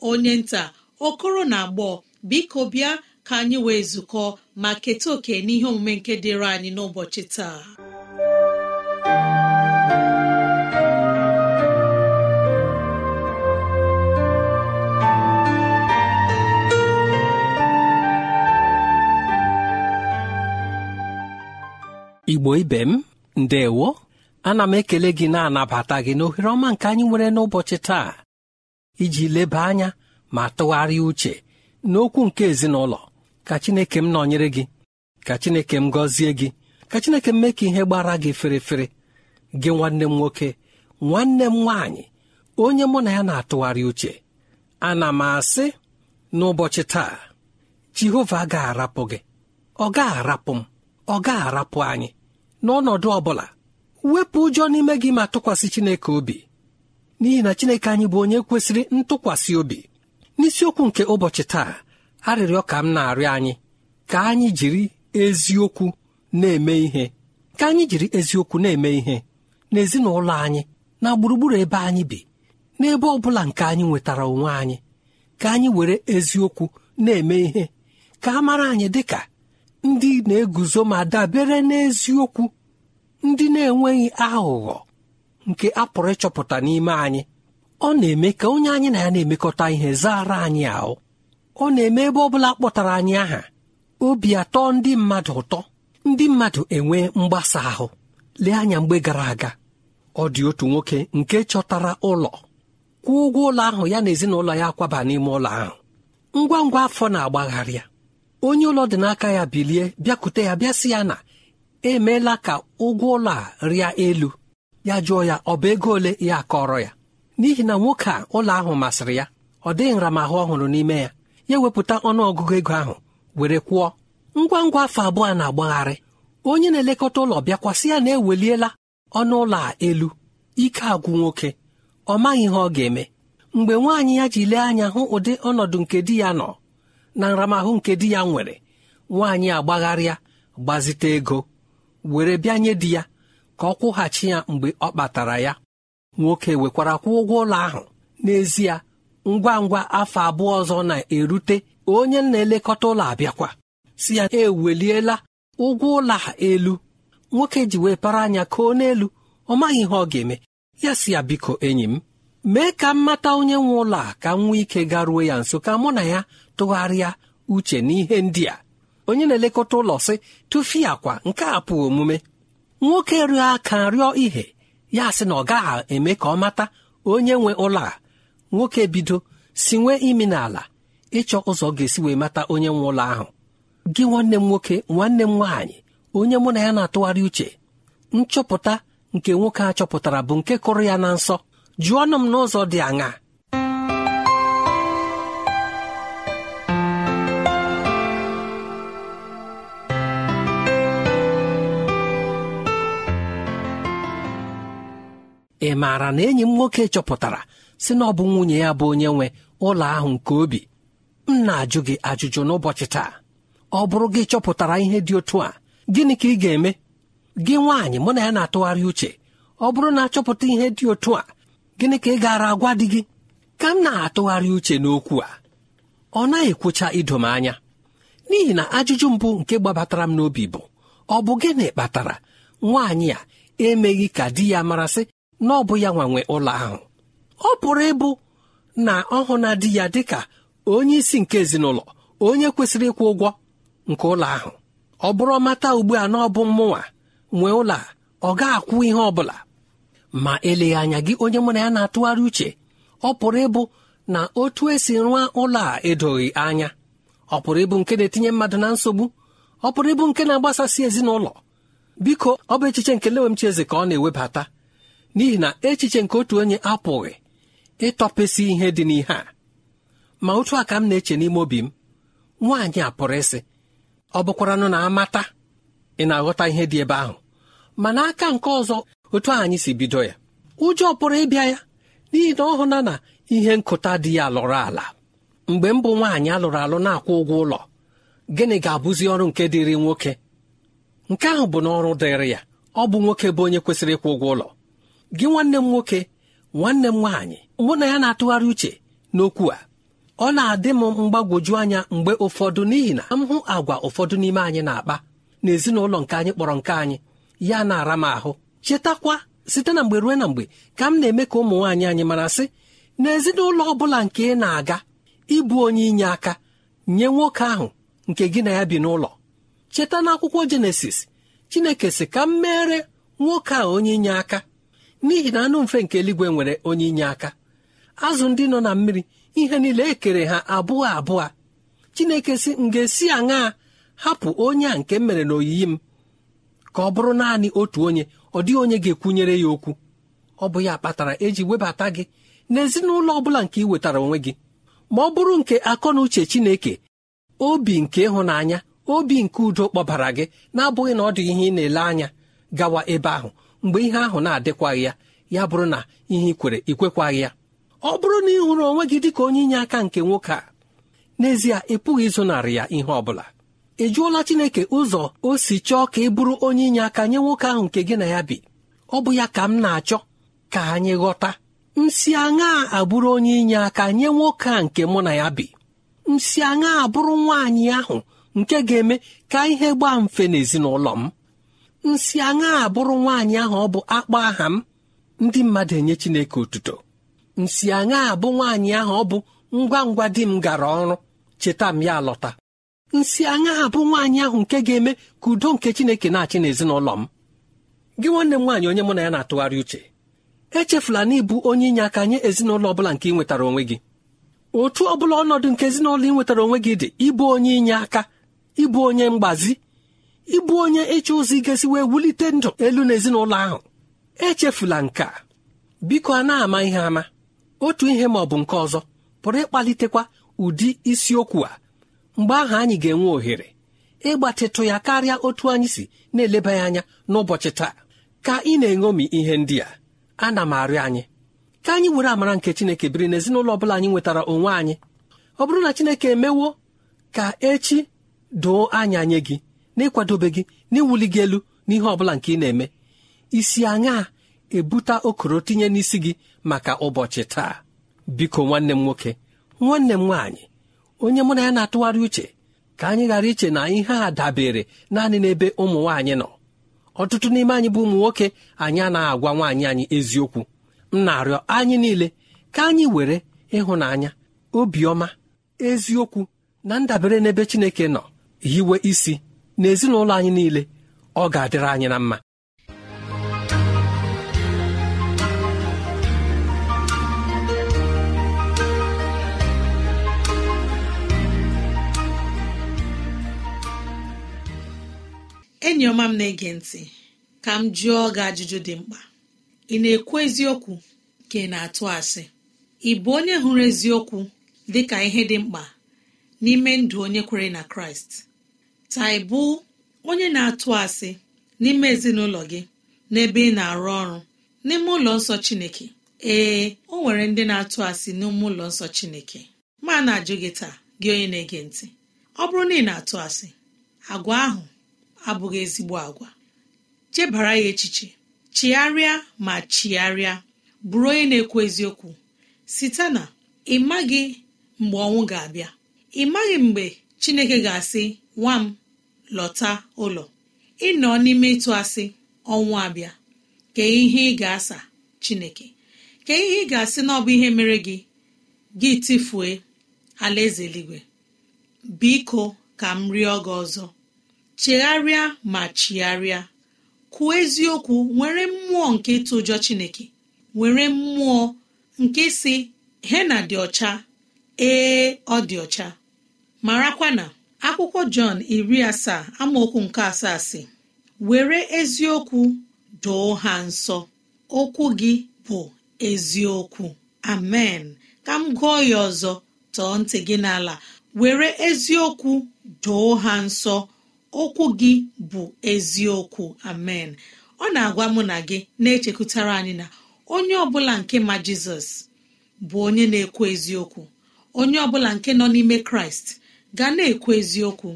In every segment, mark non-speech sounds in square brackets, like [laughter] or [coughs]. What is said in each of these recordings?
onye nta okoro na agbọ biko bịa ka anyị wee zukọ ma keta oke n'ihe omume nke dịịrị anyị n'ụbọchị taa igbo ibe m ndewo ana m ekele gị na-anabata gị n'ohere ọma nke anyị nwere n'ụbọchị taa iji leba anya ma tụgharịa uche n'okwu nke ezinụlọ ka Chineke m nọnyere gị ka Chineke m gọzie gị ka Chineke m mee ka ihe gbara gị fere gị nwanne m nwoke nwanne m nwaanyị onye mụ na ya na-atụgharị uche ana m asị n'ụbọchị taa Jehova ga arapụ gị ọ ga arapụ m ọ ga arapụ anyị n'ọnọdụ ọ bụla wepụ ụjọ n'ime gị ma tụkwasị Chineke obi n'ihi na chineke anyị bụ onye kwesịrị ntụkwasị obi n'isiokwu nke ụbọchị taa arịrịọ ka m na-arịọ anyị ka anyị jiri eziokwu na-eme ihe ka anyị jiri eziokwu na-eme ihe n'ezinụlọ anyị na gburugburu ebe anyị bi n'ebe ọ bụla nke anyị nwetara onwe anyị ka anyị were eziokwu na-eme ihe ka a mara anyị dị ka ndị na-eguzo ma dabere n'eziokwu ndị na-enweghị aghụghọ nke a pụrụ ịchọpụta n'ime anyị ọ na-eme ka onye anyị na ya na-emekọta ihe zara anyị ahụ ọ na-eme ebe ọ bụla kpọtara anyị aha obi atọ ndị mmadụ ụtọ ndị mmadụ enwe mgbasa ahụ lee anya mgbe gara aga ọ dị otu nwoke nke chọtara ụlọ kwụọ ụgwọ ụlọ ahụ ya na ezinụlọ ya kwaba n'ime ụlọ ahụ ngwa ngwa afọ na-agbagharịa onye ụlọ dị n'aka ya bilie bịakute ya bịasị ya na emeela ka ụgwọ ụlọ a rịa elu ya jụọ ya ọ bụ ego ole ya akọrọ ya n'ihi na nwoke a ụlọ ahụ masịrị ya ọ dịghị nramahụ ọhụrụ n'ime ya ya wepụta ọnụọgụgụ ego ahụ were kwụọ ngwa ngwa afọ abụọ na-agbagharị onye na-elekọta ụlọ bịakwasị ya na-eweliela ọnụ ụlọ a elu ike agwụ nwoke ọ maghị ihe ọ ga-eme mgbe nwaanyị ya ji lee anya hụ ụdị ọnọdụ nke di ya nọ na nramahụ nke di ya nwere nwaanyị agbagharịa gbazite ego were bịa nye di ya ka ọ kwụghachi ya mgbe ọ kpatara ya nwoke wekwara kwa ụgwọ ụlọ ahụ n'ezie ngwa ngwa afọ abụọ ọzọ na-erute onye na-elekọta ụlọ abịakwa si ya eweliela ụgwọ ụlọ elu nwoke ji wee para anya koo n'elu ọ maghị ihe ọ ga-eme ya si ya biko enyi m mee ka m mata onye nwe ụlọ a ka m nwee ike garuo ya nso ka mụ na ya tụgharịa uche n'ihe ndị a onye na-elekọta ụlọ sị tụfia kwa nke a pụọ omume nwoke rịọ aka rịọ ihe ya sị na ọ gaghị eme ka ọ mata onye nwe ụlọ a nwoke bido si nwee imi n'ala ịchọ ụzọ ga-esi wee mata onye nwe ụlọ ahụ gị nwanne m nwoke nwanne m nwaanyị onye mụ na ya na-atụgharị uche nchọpụta nke nwoke a chọpụtara bụ nke kụrụ ya na nsọ jụọ ọnụ m n'ụzọ dị aṅaa ị maara na enyi m nwoke chọpụtara si na ọ bụ nwunye ya bụ onye nwe ụlọ ahụ nke obi m na-ajụ gị ajụjụ n'ụbọchị taa ọ bụrụ gị chọpụtara ihe dị otu a gịnị ka ị ga-eme gị nwaanyị mụ na ya na-atụgharị uche ọ bụrụ na achọpụta ihe dị otu a gịnị ka ị gara agwa di gị ka m na-atụgharị uche n'okwu a ọ naghị ekwucha idom anya n'ihi na ajụjụ mbụ nke gbabatara m n'obi bụ ọ bụ gịnị kpatara nwaanyị a emeghị ka di ya marasị na ọ bụ ya nwa nwe ụlọ ahụ ọ pụrụ ịbụ na ọ hụ na di ya dịka onye isi nke ezinụlọ onye kwesịrị ịkwụ ụgwọ nke ụlọ ahụ ọ bụrụ ọmata ugbu a na ọ bụ mmụnwa nwee ụlọ a ọ ga-akwụ ihe ọ bụla ma eleghị anya gị onye mụ na ya na-atụgharị uche ọ pụrụ ịbụ na otu esi rụọ ụlọ a edoghị anya ọ pụrụ ịbụ nke na-etinye mmadụ na nsogbu ọ pụrụ ịbụ nke na-agbasasị ezinụlọ biko ọ bụ echiche nke lewemchi eze ka ọ na-ewebata n'ihi na echiche nke otu onye apụghị ịtọpesị ihe dị n'ihe a ma otu a ka m na-eche n'ime obi m nwaanyị a pụrụ ịsị ọ bụkwaranụ na amata ị na-aghọta ihe dị ebe ahụ ma n'aka nke ọzọ otu anyị si bido ya ụjọ pụrụ ịbịa ya n'ihi na ọ hụna na ihe nkụta dị ya lụrụ ala mgbe m bụ nwaanyị alụrụ alụ na-akwụ ụgwọ ụlọ gịnị ga-abụzi ọrụ nke dịrị nwoke nke ahụ bụ n'ọrụ dịrị ya ọ bụ nwoke bụ onye kwesịrị ịkwụ ụgwọ ụlọ gị nwanne m nwoke nwanne m nwaanyị mụ na ya na-atụgharị uche n'okwu a ọ na-adị m mgbagwoju anya mgbe ụfọdụ n'ihi na m hụ agwa ụfọdụ n'ime anyị na-akpa na ezinụlọ nke anyị kpọrọ nke anyị ya na-ara m ahụ chetakwa site na mgbe ruo na mgbe ka m na-eme ka ụmụ nwaanyị anyị mara sị na ezinụlọ ọ bụla nke ị na-aga ịbụ onye inye aka nye nwoke ahụ nke gị na ya bi n'ụlọ cheta n'akwụkwọ jenesis chineke sị ka m meere nwoke a onye inye aka n'ihi na anụ mfe nke eluigwe nwere onye inye aka azụ ndị nọ na mmiri ihe niile ekere ha abụọ abụọ chineke si m ga-esi aṅaa hapụ onye a nke mere mere n'oyiyi m ka ọ bụrụ naanị otu onye ọ dịghị onye ga-ekwunyere ya okwu ọ bụ ya kpatara eji webata gị n'ezinụlọ ọ bụla nke ị wetara onwe gị ma ọ bụrụ nke akọ na uche chineke obi nke ịhụnanya obi nke udo kpọbara gị na-abụghị na ọ dị ihe ị na-ele anya gawa ebe ahụ mgbe ihe ahụ na-adịkwaghị ya ya bụrụ na ihe ikwere kwere ikwekwaghị ya ọ bụrụ na ị hụrụ onwe gị dịka onye inye aka nke nwoke a n'ezie ị pụghị ịzụnarị ya ihe ọ bụla ị jụọla Chineke ụzọ o si chọọ ka ị bụrụ onye inye aka nye nwoke ahụ nke gị na ya bi ọ bụ ya ka m na-achọ ka anyị ghọta nsị aṅa abụrụ onye inye aka nye nwoke a nke mụ na ya bi nsị aṅa abụrụ nwaanyị ahụ nke ga-eme ka ihe gbaa mfe n'ezinụlọ m nsị aṅa abụrụ nwaanyị ahụ ọ bụ akpọ aha m ndị mmadụ enye Chineke otuto nsị aṅa abụ nwaanyị ahụ ọ bụ ngwa ngwa di m gara ọrụ cheta m ya lọta nsị aṅa abụ nwaanyị ahụ nke ga-eme ka udo nke Chineke na-achị n'ezinụlọ m gị nwanne m nwaanyị onye mụ na ya na-atụgharị uche echefula na ịbụ onye inye aka nye ezinụlọ ọ bụla nke ị nwetara onwe gị otu ọ bụla ọnọdụ nke ezinụlọ ị nwetara onwe gị dị ịbụ onye inye aka ịbụ onye mgbazi ịbụ onye ịchọ ụzọ igesi wee wulite ndụ elu n'ezinụlọ ahụ echefula nke a biko a na-ama ihe ama otu ihe ma ọ bụ nke ọzọ pụrụ ịkpalitekwa ụdị isiokwu a mgbe ahụ anyị ga-enwe ohere ịgbatịtụ ya karịa otu anyị si na-eleba ya anya n'ụbọchị taa ka ị na-eṅomi ihe ndị a ana m arịọ anyị ka anyị were amara nke Chineke biri n'ezinụlọ ọ bụla anyị nwetara onwe anyị ọ bụrụ na Chineke emewo ka echi doo anya nye gị na gị n'iwuli gị elu n'ihe ọ bụla nke ị na-eme isi aṅaa ebuta okoro tinye n'isi gị maka ụbọchị taa biko nwanne m nwoke nwanne m nwaanyị onye mụ na ya na-atụgharị uche ka anyị ghara iche na ihe a dabere naanị n'ebe ụmụ nwaanyị nọ ọtụtụ n'ime anyị bụ ụmụ nwoke anyị anaghị agwa nwaanyị anyị eziokwu m na-arịọ anyị niile ka anyị were ịhụnanya obiọma eziokwu na ndabere n'ebe Chineke nọ hiwe isi n'ezinụlọ anyị niile ọ ga-adịrị anyị na mma enyi ọma m na-ege ntị ka m jụọ gị ajụjụ dị mkpa ị na-ekwu eziokwu ka ị na-atụ asị ị bụ onye hụrụ eziokwu dị ka ihe dị mkpa n'ime ndụ onye kwere na kraịst ka onye na-atụ asị n'ime ezinụlọ gị n'ebe ị na-arụ ọrụ n'ime ụlọ nsọ Chineke ee o nwere ndị na-atụ asị n'ime ụlọ nsọ Chineke ma na-ajụ gị taa gị onye na-ege ntị ọ bụrụ na ị na-atụ asị agwa ahụ abụghị ezigbo agwa chebara ya echiche chigharịa ma chigharịa bụrụ onye na-ekwu eziokwu site na ị maghị mgbe ọnwụ ga-abịa ị maghị mgbe Chineke ga-asị nwa m lọta ụlọ ịnọ n'ime ịtụ asị ọnwụ abịa kee ihe ị ga-asa chineke kee ihe ị ga-asị na ọ bụ ihe mere gị gị tifue alaeze eluigwe biko ka m rịọ gị ọzọ chegharịa ma chigharịa kwuo eziokwu nwere mmụọ nke ịtụ ụjọ chineke nwere mmụọ nke si hena dị ọcha ee ọ dị ọcha marakwa na akwụkwọ jọn iri asaa amaokwu nke asaa si were eziokwu doo ha nsọ okwu gị bụ eziokwu amen ka m gụọ ya ọzọ tọọ ntị gị n'ala were eziokwu doo ha nsọ okwu gị bụ eziokwu amen ọ na-agwa mụ na gị na-echekwutara anyị na onye ọbụla nke ma jizọs bụ onye na-ekwu eziokwu onye ọbụla nke nọ n'ime kraịst ga na-ekwu eziokwu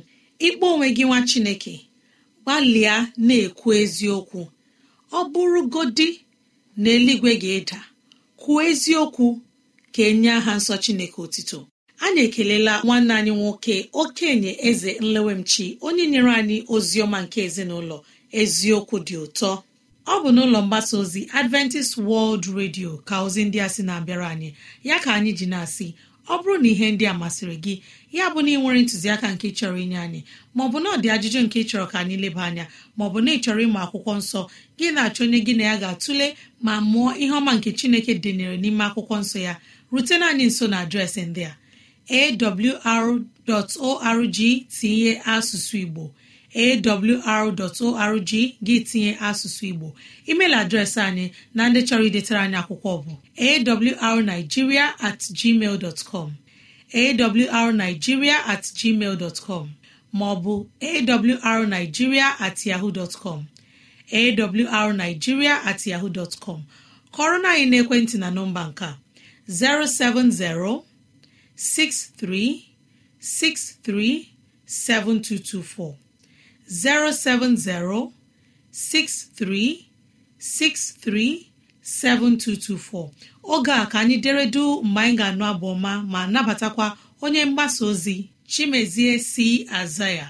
ịkpọ onwe gị nwa chineke gbalịa na-ekwu eziokwu ọ bụrụ godi na eluigwe ga-eda kwuo eziokwu ka enye aha nsọ chineke otito anyị ekelela nwanne anyị nwoke okenye eze nlewemchi onye nyere anyị ozi ọma nke ezinụlọ eziokwu dị ụtọ ọ bụ n'ụlọ mgbasa ozi adventist world radio ka ozi ndị a sị na-abịara anyị ya ka anyị ji na-asị ọ bụrụ na ihe ndị a masịrị gị ya bụ na ị nwere ntụziaka nke chọrọ inye anyị maọbụ na ọ dị ajụjụ nke chọrọ ka anyị leba anya maọbụ na ị chọrọ ịmụ akwụkwọ nsọ gị na-achọ onye gị na ya ga-atụle ma mụọ ihe ọma nke chineke dịnyere n'ime akwụkwọ nsọ ya rutena anyị nso na adreesị ndị a awr.org tinye asụsụ igbo awr.org gị tinye asụsụ igbo email adreesị anyị na ndị chọrọ idetara anyị akwụkwọ bụ awrnigeria at gmail dot com awrnigeria at gmail dot com maọbụ awrnigeria at yahoo dot com awrnigeria at yahoo dot com kọrọ na anyị n'ekwentị na nọmba nke a 070 6363 7224 07063637224 oge a ka anyị deredu mgbe anyị ga-anụ abụ ọma ma nabatakwa onye mgbasa ozi chimezie si aza ya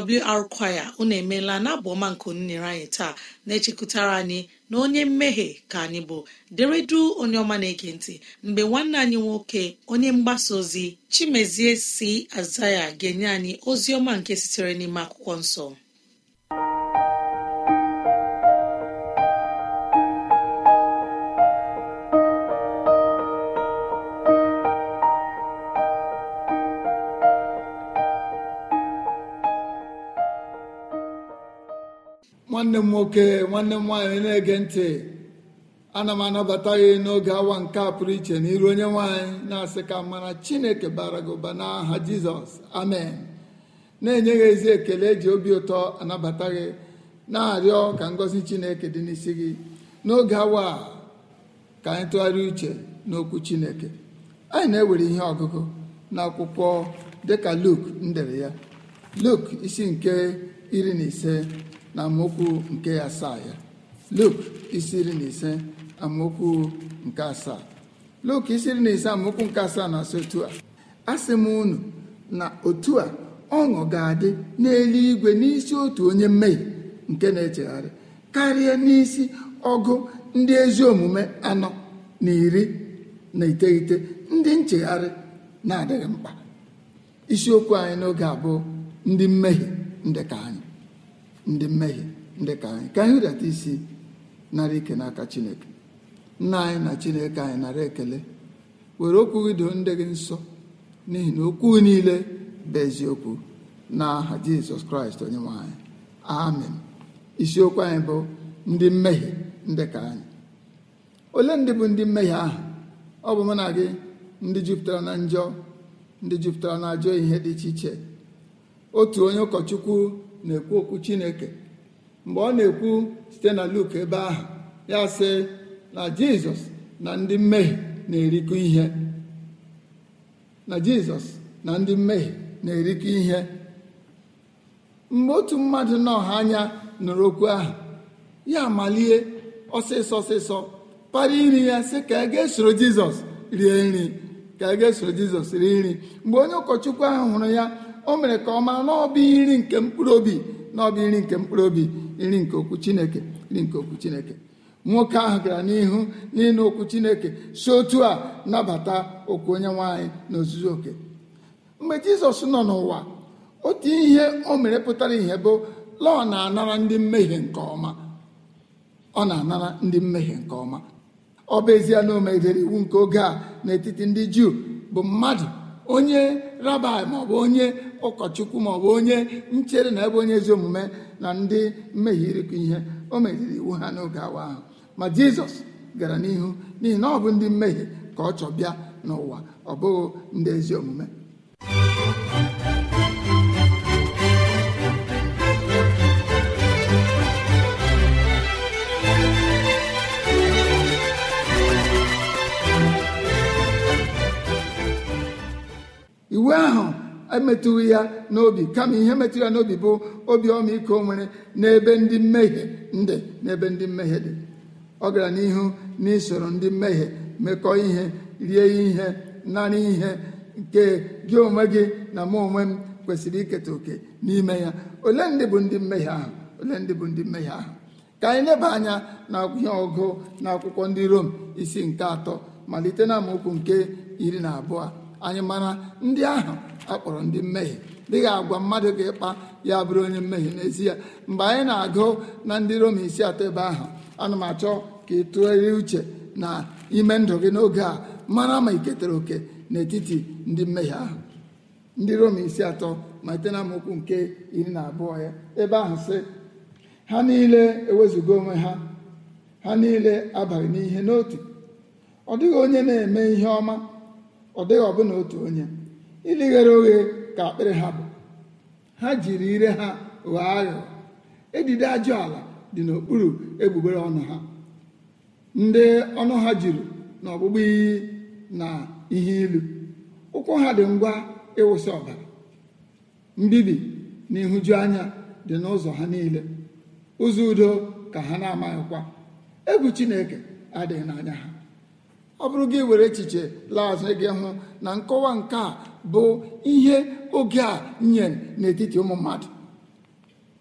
AWR kwaya unu emeela na abụ ọma nke unu anyị taa na-echekụtara anyị na onye mmehie ka anyị bụ deredu onye ọma na-ege ntị mgbe nwanne anyị nwoke onye mgbasa ozi Chimezie si Azaya ga-enye anyị ozi ọma nke sitere n'ime akwụkwọ nsọ nwanne m nwoke nwanne m nwaanyị na-ege ntị ana m anabata gị n'oge awa nke a pụrụ iche n'iru onye nwaanyị na-asị ka mara chineke bara gị ụba n'aha jizọs amen na-enye gị ezi ekele eji obi ụtọ anabata gị na-arịọ ka ngọzi chineke dị n'isi gị n'oge awa ka anyị tụgharịa uche n'okwu chineke anyị na-ewere ihe ọgụgụ n'akwụkwọ dịka luk ndere ya luk isi nke iri na ise na amaokwu nke asaa ya Luk isi na ise amaokwu nke asaa Luk na ise amaokwu nke asaa na-asị a asị m unu na otu a ọṅụ ga-adị n'elu igwe n'isi otu onye mmehi nke na-echegharị karịa n'isi ọgụ ndị ezi omume anọ na iri na iteghete ndị nchegharị na-adịghị mkpa isiokwu anyị n'oge abụọ ndị mmehie ndị ka anyị ndị mmehie ndị ka anyị ka anyị hụdata isi nara ike n'aka chineke nna anyị na chineke anyị nara ekele were okwu gị doo ndị gị nsọ n'ihi na okwu niile bụ eziokwu aha jizọs kraịst onye nwanyị anyị amen isiokwu anyị bụ ndị mmehie ndị ka anyị ole ndị bụ ndị mmehie ahụ ọ bụ mụ na gị ndị jupụtara na njọ ndị jupụtara na ajọ ihe dị iche iche otu onye ụkọchukwu na-ekwu okwu chineke mgbe ọ na-ekwu site na luk ebe ahụ ya sị na jizọs na ndị mmehie na-erikọ ihe mgbe otu mmadụ n'ọha anya nụrụ okwu ahụ ya amalie ọsịsọ ọsịsọ para iri ya sị ka a e ga-esoro jizọs rie nri ka e ga-esoro jizọs rie nri mgbe onye ụkọchukwu ahụ hụrụ ya o mere ka ọ mara na ọbụ iri nke mkpụrụ obi na ọbụ iri nke mkpụrụ obi iri nke okwu chineke iri nke okwu chineke nwoke ahụ gara n'ihu n'ịnụ okwu chineke si otu a nabata okwu onye nwanyị na ozuzu oke mgbe jizọs nọ n'ụwa otu ihe o mere pụtara ihe bụ la ọ na-anara ndị mmehie nke ọma ọ na-anara ndị mmehie nke ọma ọ bụ ezie na o megidere iwu nke oge a n'etiti ndị juu bụ mmadụ onye rabai maọbụ onye ụkọchukwu maọbụ onye nchere na ebe onye ezi omume na ndị mmehie ịrịkọ ihe o meziri iwu ha n'oge awa ahụ ma jizọs gara n'ihu n'ihi na ọ bụ ndị mmehie ka ọ chọbịa n'ụwa ọ bụghị ndị ezi omume emetụghị ya n'obi kama ihe metụrụ ya n'obi bụ obi ọmịiko nwere n'ebe ndị mmehie ndị n'ebe ndị mmehie dị ọ gara n'ihu n'isoro ndị mmehie mekọọ ihe rie ihe narị ihe nke gị onwe gị na mụ onwe m kwesịrị iketa oke n'ime ya ole ndị bụ ndị mmehie ahụ ole ndị bụ ndị mmehie ahụ ka anyị leba anya na ihe ọgụ na akwụkwọ ndị rom isi nke atọ malite na nke iri na abụọ anyị mara ndị ahụ akpọrọ ndị mmehie dịghị agwa mmadụ ka ịkpa ya bụrụ onye mmehie n'ezie mgbe anyị na-agụ na ndị Roma isi atọ ebe ahụ ana m achọ ka ị tụgharịa uche na ime ndụ gị n'oge a mara ma iketere oke n'etiti ndị mmehie ahụ ndị Roma isi atọ malite na amaokwu nke iri na abụọ ya ebe ahụ sị ha niile ewezuga onwe ha ha niile abaghị n'ihe n'otu ọ dịghị onye na-eme ihe ọma ọ dịghị ọbụna otu onye ndị ghere oghe ka akpịrị ha bụ ha jiri ire ha ghọọ aghụghọ edide ajụ ala dị n'okpuru egbugbere ọnụ ha ndị ọnụ ha juru na ọgbụgbụ iyi na ihe ilu ụkwụ ha dị ngwa ịwụsị ọbara mbibi na ịhụju anya dị n'ụzọ ha niile ụzọ udo ka ha na-amaghịkwa egwu chineke adịghị n'anya ha ọ bụrụ gị were echiche laa azụ gị hụ na nkọwa nke a bụ ihe oge a nye n'etiti ụmụ mmadụ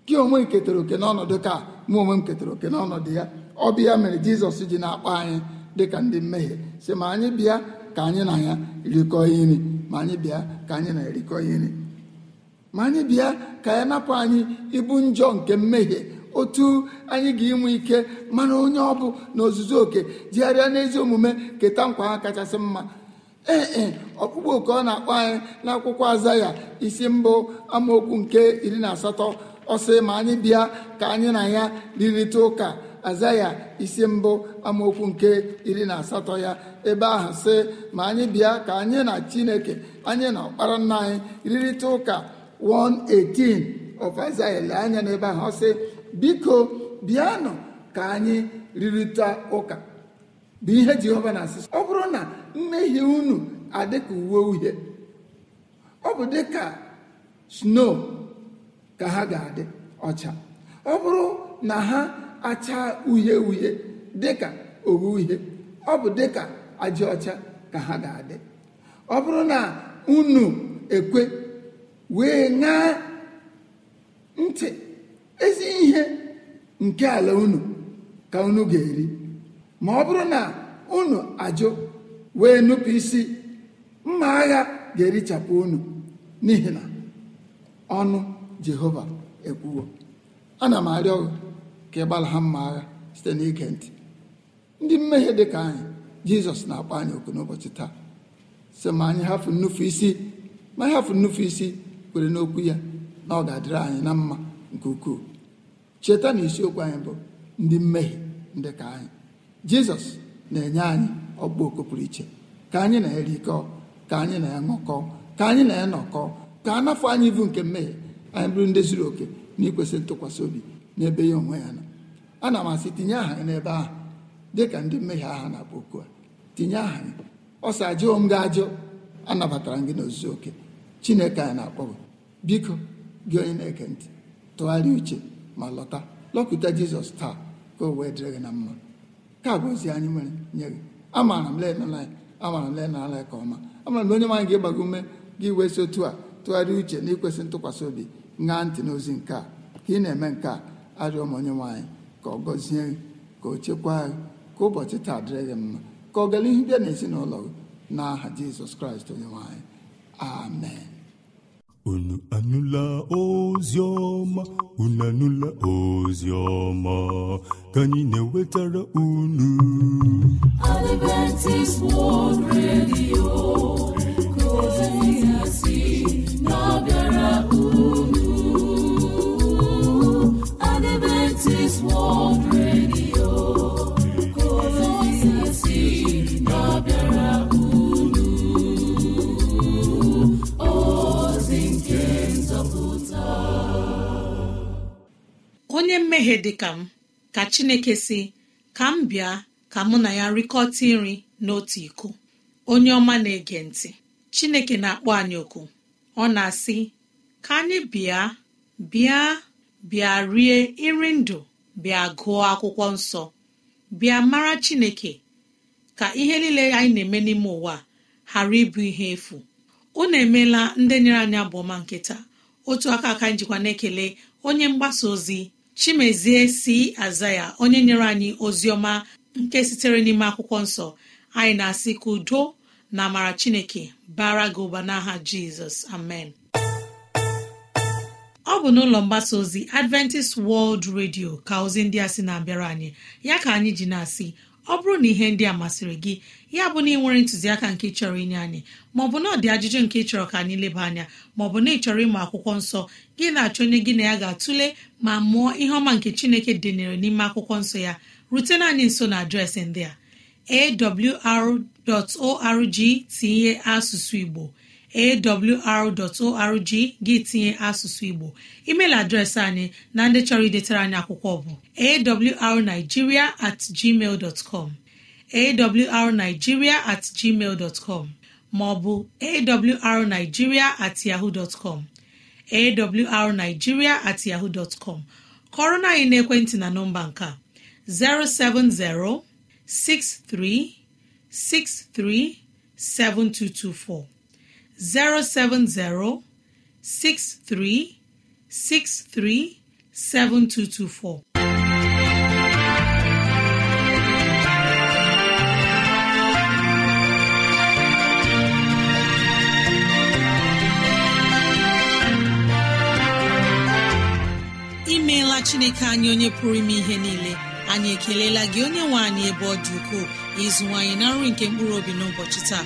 gị onwe ketara oke n'ọnọdụ ka mụ onwe m ketara oke n'ọnọdụ ya ọ bịa mere jizọs ji na-akpọ anyị dịka ndị mmehie si ma anyị bịa ka anyị na ya rikọọ nri ma anyị bịa ka anyị na ya rikọọ nri ma anyị bịa ka ya napụ anyị ibu njọ nke mmehie otu anyị ga-enwe ike mana onye ọ bụ na ozuzu oke jigharịa n'ezi omume keta nkwa ha kachasị mma ee [coughs] ọkpụkpọ oke ọ na-akpọ anyị n'akwụkwọ azaya isi mbụ amaokwu nke iri na asatọ ọsị ma anyị bịa ka anyị na ya rịrịta ụka azaya isi mbụ amaokwu nke iri na asatọ ya ebe ahụ sị ma anyị bịa ka anyị na chineke anyị na ọkpara nna anyị rịrịta ụka 118 of azaya lee anya n'ebe ahụ ọ sị biko bịanụ ka anyị rịrịta ụka bụ ihe jehova na asịsị ọ bụrụ na mmehie unu adịka uwe uhie ọ bụ dịka sno ka ha ga-adị ọcha ọ bụrụ na ha acha uhie uhie dịka owu uhie ọ bụ dịka ajị ọcha ka ha ga-adị ọ bụrụ na unu ekwe wee ṅaa ntị ezi ihe nke ala unu ka unu ga-eri ma ọ bụrụ na unu ajụ wee nupụ isi mma agha ga-erichapụ unu n'ihi na ọnụ jehova ekwuwo ana m arịọ ka ịgbala ha mma agha site n'ige ntị ndị mmehie dị ka anyị jizọs na-akpọ anyị oku n'ụbọchị taa sị ma anyị hafụ nnufu isi ma anyị hafụ nnufu isi kwere n'okwu ya na ọ ga-adịrị anyị na mma nke ukwuu cheta na isiokwu anyị bụ ndị mmehie ndị ka anyị jizọs na-enye anyị ọkpọoko pụrụ iche ka anyị na erikọ ka anyị na ya ka anyị na ya ka a nafọ anyị ibu nke mmehie anyị bụrụ ndị zuru oke na ikwesị ntụkwasị obi n'ebe ya onwe ya nọ ana m asị tinye aha n'ebe ahụ dị ka ndị mmehie aha na-akpọ oku a tinye aha ya ọsa sị ajụọ m anabatara gị n'ozuzu oke chineke anyị na-akpọ biko gị onye na eke ntị tụgharịa uche ma lọta lọkụta jizọs taa ka o wee dịrị gị na mma ka bụ ozi anyị nwere nye gị amaara m lenala amaara m lenala ka ọma amaara m na onye nwanyị ga-agbago ume gị wesi otu a tụgharịa uche na ikwesị ntụkwasị obi ṅaa ntị n'ozi nke a ka ị na-eme nke a arịọ m onye nwaanyị ka ọ gọzie gị ka o chekwaa gị ka ụbọchị taa dịrị gị mma ka ọ gara ihu bịa n'ezinụlọ gị n'aha Jizọs Kraịst onye nwaanyị amen unu anụla ozi ọma unu anụla ozi ọma ka anyị na-ewetara unu Adventist World Radio onye mmehie dị ka m ka chineke si ka m bịa ka mụ na ya rikọta nri n'otu iko onye ọma na-ege ntị chineke na-akpọ anyị oku ọ na-asị ka anyị bịa bịa bịa rie nri ndụ bịa gụọ akwụkwọ nsọ bịa mara chineke ka ihe niile anyị na-eme n'ime ụwa ghara ịbụ ihe efu unu emeela ndị nyere anyị abụọma nkịta otu aka aka njikwa na-ekele onye mgbasa ozi chimezie si aza ya onye nyere anyị ozi ọma nke sitere n'ime akwụkwọ nsọ anyị na-asị ka udo na amara chineke bara gị ụba n'aha jizọs amen ọ bụ n'ụlọ mgbasa ozi adventist world radio ka ozi ndị a sị na-abịara anyị ya ka anyị ji na-asị ọ bụrụ na ihe ndị a masịrị gị ya bụ na ị nwere ntụziaka nke chọrọ inye anyị maọbụ na ọ dị ajụjụ nke ịchọrọ ka anyị leba anya maọbụ na ịchọrọ ịmụ akwụkwọ nsọ gị na-achọ onye gị na ya ga-atụle ma mụọ ihe ọma nke chineke dịnyere n'ime akwụkwọ nsọ ya rutena anyị nso na adreesị ndị a awr.org tinye asụsụ igbo awr.org gị tinye asụsụ igbo email adreesị anyị na ndị chọrọ idetara anyị akwụkwọ bụ awrnigeria at gmail com awrnigeria at com maọbụ awrnigeria at com awrnigeria at kọrọ na anyị n'ekwentị na nọmba nke a 070 6363 7224 070-6363-7224. imeela chineke anyị onye pụrụ ime ihe niile anyị ekeleela gị onye nwe anyị ebe ọ dị ukwuu ịzụwanyị na nri nke mkpụrụ obi n'ụbọchị taa